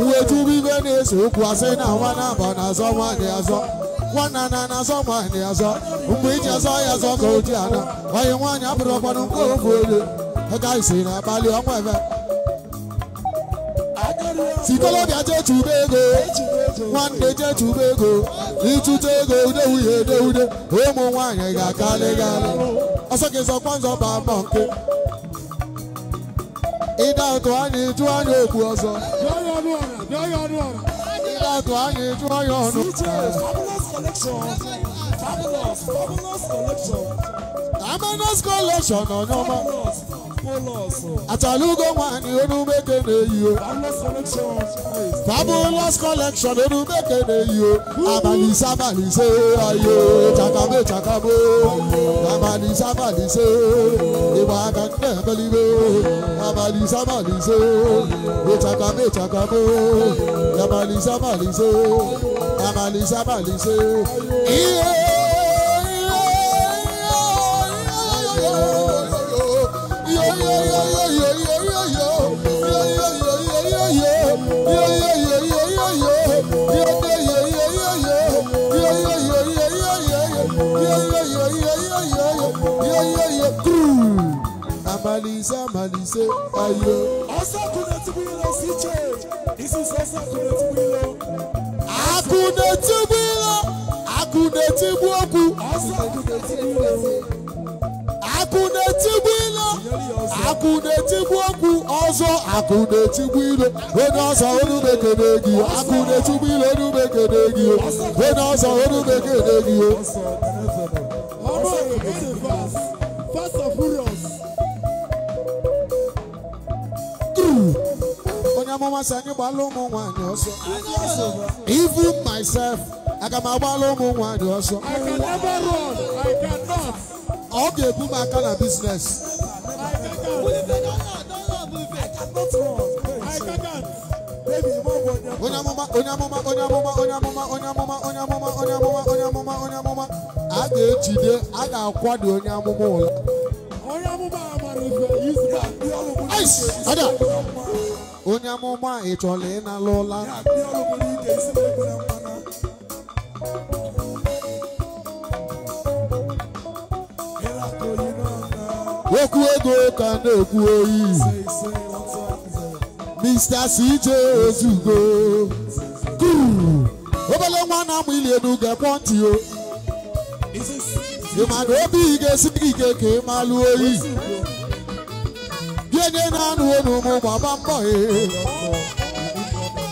uwe tubu igwe na-ese okwu asị na nwa na-aba na-azọ nwanyị gị azọ nwanna na na-azọ nwanyị azọ mgbe iji azọ ya azọ ka oji ana onye nwaanyị apụrụ ọkwanụ nke ofu olu ka isi na abalị ọnwa eme sikolobịa jee chube ego nwanne jee chube ego ịchụta ego ude uhie ede ude ụmụ nwaanyị ga-akalị gị alị ọsọ gị zọkwa nzọ ba mbọ nke ịda ụtụ anyị jụọ anyị okwu ọzọ Ìbàdàn ayé Fabulous collection. Fabulous, fabulous collection. Fabulous collection Atalugo nwanyị Olumeke na-eyi o. Fabulous collection Olumeke na-eyi o. Abalịse abalịse ayo chakame chakamo. Abalịse abalịse ịgba aka nne ebelibe. Abalịse abalịse ịchakame chakamo. Abalịse abalịse abalịse abalịse. Ihe. Malisa Malise ayo. Ọ̀sàkùnrin ti bí lọ sí church. This is ọ̀sàkùnrin ti bí lọ. Àkùnrin ti bí lọ. Àkùnrin ti bú ọkù. Ọ̀sàkùnrin ti bí lọ sí. Àkùnrin ti bí lọ. Àkùnrin ti bú ọkù. Ọ̀sọ̀ àkùnrin ti bí lọ. Onye ọ̀sà Even myself, I can also. I can never run. I cannot. Okay, put my kind of business. I cannot run. I cannot. Onyamoma, onyamoma, onyamoma, onyamoma, onyamoma, onyamoma, onyamoma, onyamoma, onyamoma. A ga-ejide, a ga-akwado onyamoma ụlọ. Onyamoma Onya mama. Onya mama. ọrụ bụ onye amụma ị chọrọ ịnala ụla okwu ego ka na-ekwu oyi Mr. CJ Ozugbo kuru obele nwa na-amụ ili elu ga-ekpọ ntị o ị ma na obi ị ga-esi ike ka ị oyi onye na-anụ ụmụ ọba gbaba mbọ e.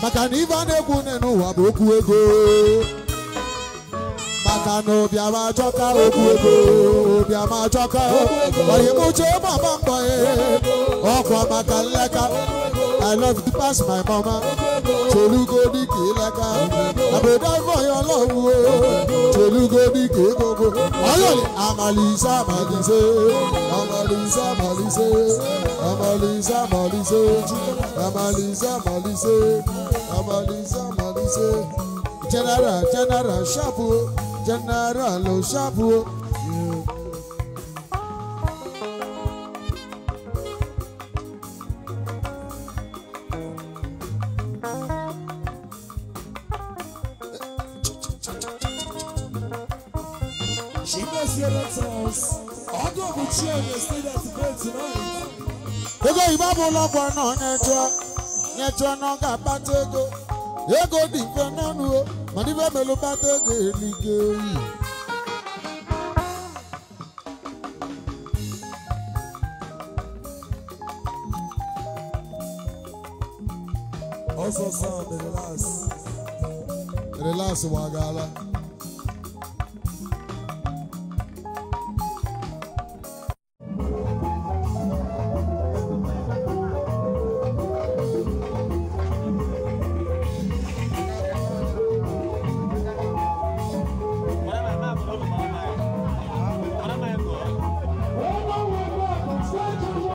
maka na ife a na-ekwu nne bụ okwu ego maka na obiama achọka okwu ego obiama achọka oyimụcha ọba mbọ ọkwa maka nleka I love you pass my mama. Tolugo di kelaka. Amalisa Malise, Amalisa Malise, Amalisa Malise, Amalisa Malise, Amalisa Malise. General, General, Shabu, General, Shabu. ego ibabu ụlọgwọ nọ nyetụọ nyetụọ n'ọga akpata ego ego dị mfe n'ọnụ mana ibe melụ kpata ego elige oyi ọsọsọ relax relax wagala